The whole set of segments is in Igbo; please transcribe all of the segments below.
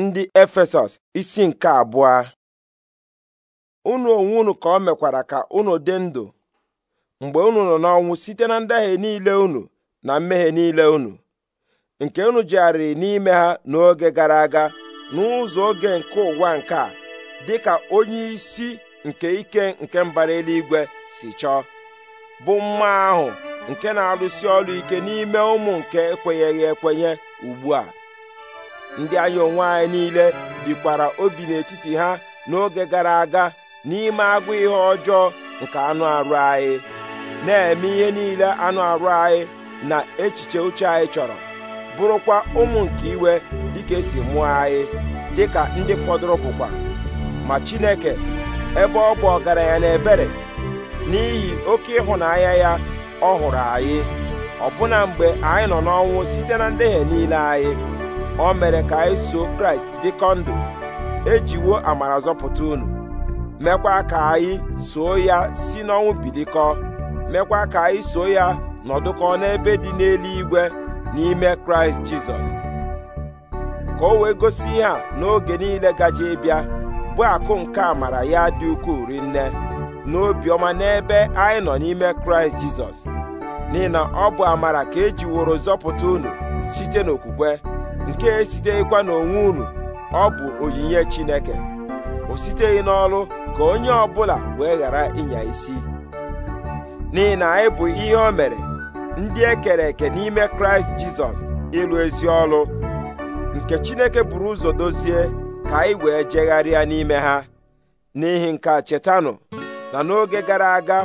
ndị efesọs isi nke abụọ unu onwe unu ka o mekwara ka unu dị ndụ mgbe unu nọ n'ọnwụ site na ndahie niile unu na mmehie niile unu nke unu jegharịrị n'ime ha n'oge gara aga n'ụzọ oge nke ụwa nke a dị ka onye isi nke ike nke mbara eluigwe si chọọ bụ mma ahụ nke na-arụsi ọrụ ike n'ime ụmụ nke ekwenyeghị ekwenye ugbu a ndị anyị onwe anyị niile bikwara obi n'etiti ha n'oge gara aga n'ime agụ ihe ọjọọ nke anụ arụ anyị na-eme ihe niile anụ arụ anyị na echiche uche anyị chọrọ bụrụkwa ụmụ nke iwe dịka esi mụọ anyị dịka ndị fọdụrụ bụkwa ma Chineke ebe ọ bụ ọgaranya na ebere n'ihi oke ịhụnanya ya ọ hụrụ anyị ọbụna mgbe anyị nọ n'ọnwụ site na ndehie niile anyị o mere ka anyị so kraịst dịkọ ndụ ejiwo amara zọpụta unu mekwa ka anyị soo ya si n'ọnwụ bilikọ mekwa ka anyị so ya nọdụkọ n'ebe dị n'eluigwe n'ime kraịst jizọs ka o wee gosi ihe a n'oge niile gaji ịbịa bụ akụ nke amara ya dị ukwuu rinne obiọma n'ebe anyị nọ n'ime kraịst jizọs n'ihi na ọ bụ amara ka ejiworo zọpụta unu site n'okwukwe nke esitekwa n'onwe unu ọ bụ onyinye Chineke o siteghị n'ọlụ ka onye ọbụla wee ghara ịnya isi n'ihi na anyị bụ ihe o mere ndị e kere eke n'ime Kraịst Jizọs ịlụ ezi ọlụ nke Chineke buru ụzọ dozie ka anyị wee jegharịa n'ime ha n'ihi nke a chetanụ na n'oge gara aga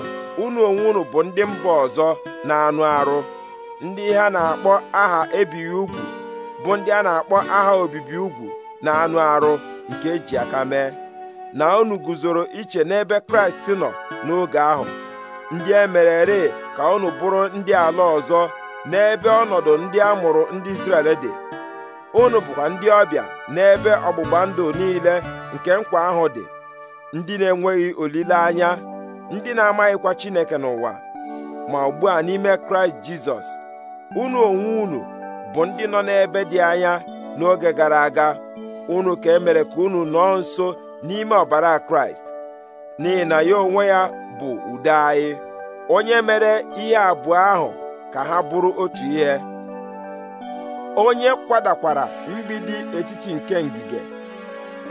unu onwe unu bụ ndị mba ọzọ na anụ arụ ndị ha na-akpọ aha ebighị ugwu bụ ndị a na-akpọ aha obibi ugwu na anụ arụ nke eji aka mee na unu guzoro iche n'ebe kraịst nọ n'oge ahụ ndị e merere ka unu bụrụ ndị ala ọzọ n'ebe ọnọdụ ndị a mụrụ ndị Izrel dị unu bụkwa ndị ọbịa n'ebe ọgbụgba ndụ niile nke nkwa ahụ dị ndị na-enweghị olileanya ndị na-amaghịkwa Chineke n'ụwa ma ugbu a n'ime Kraịst Jizọs unu onwe unu bụ ndị nọ n'ebe dị anya n'oge gara aga unu ka emere ka unu nọọ nso n'ime ọbara kraịst n'ihi na ya onwe ya bụ udo anyị onye mere ihe abụọ ahụ ka ha bụrụ otu ihe onye kwadakwara mgbidi etiti nke ngige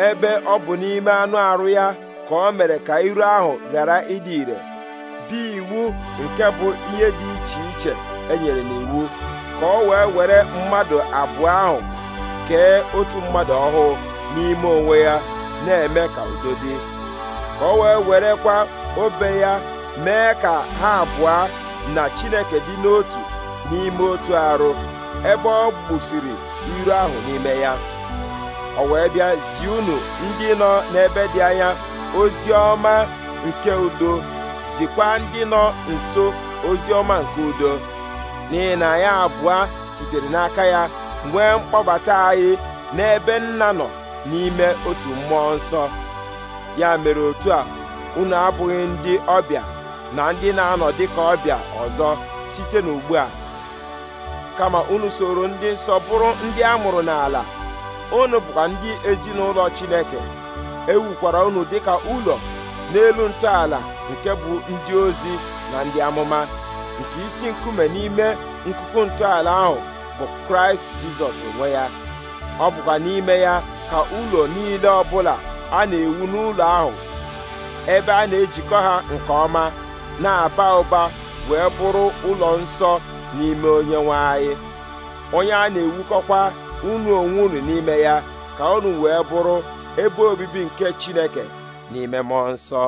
ebe ọ bụ n'ime anụ arụ ya ka ọ mere ka iru ahụ ghara ịdị ire dị iwu nke bụ ihe dị iche iche e nyere n'iwu ka ọ wee were mmadụ abụọ ahụ kee otu mmadụ ọhụụ n'ime onwe ya na-eme ka udo dị ka ọ wee werekwa obe ya mee ka ha abụọ na Chineke dị n'otu n'ime otu arụ ebe ọ gbusiri iru ahụ n'ime ya ọ wee bịa zie unu ndị nọ n'ebe dị anya ozi ọma nke udo zikwa ndị nọ nso ozi ọma nke udo n'ihi na anyị abụọ sitere n'aka ya nwee mkpọbata anyị n'ebe nna nọ n'ime otu mmụọ nsọ ya mere otu a unu abụghị ndị ọbịa na ndị na-anọ dịka ọbịa ọzọ site n'ugbu a kama unu soro ndị nsọ bụrụ ndị a mụrụ n'ala unu bụkwa ndị ezinụlọ Chineke ewukwara unu dịka ụlọ n'elu ntọala nke bụ ndị ozi na ndị amụma nke isi nkume n'ime nkuku ntọala ahụ bụ kraịst jizọs onwe ya ọ bụkwa n'ime ya ka ụlọ niile ọbụla a na-ewu n'ụlọ ahụ ebe a na-ejikọ ha nke ọma na-aba ụba wee bụrụ ụlọ nsọ n'ime onye nwanyị onye a na-ewukọkwa unu onwe unu n'ime ya ka unu wee bụrụ ebe obibi nke chineke n'ime mmụọ nsọ